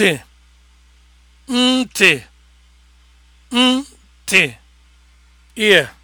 ntị ntị ntị ear